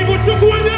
Ibu chukwu onye